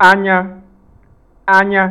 anya anya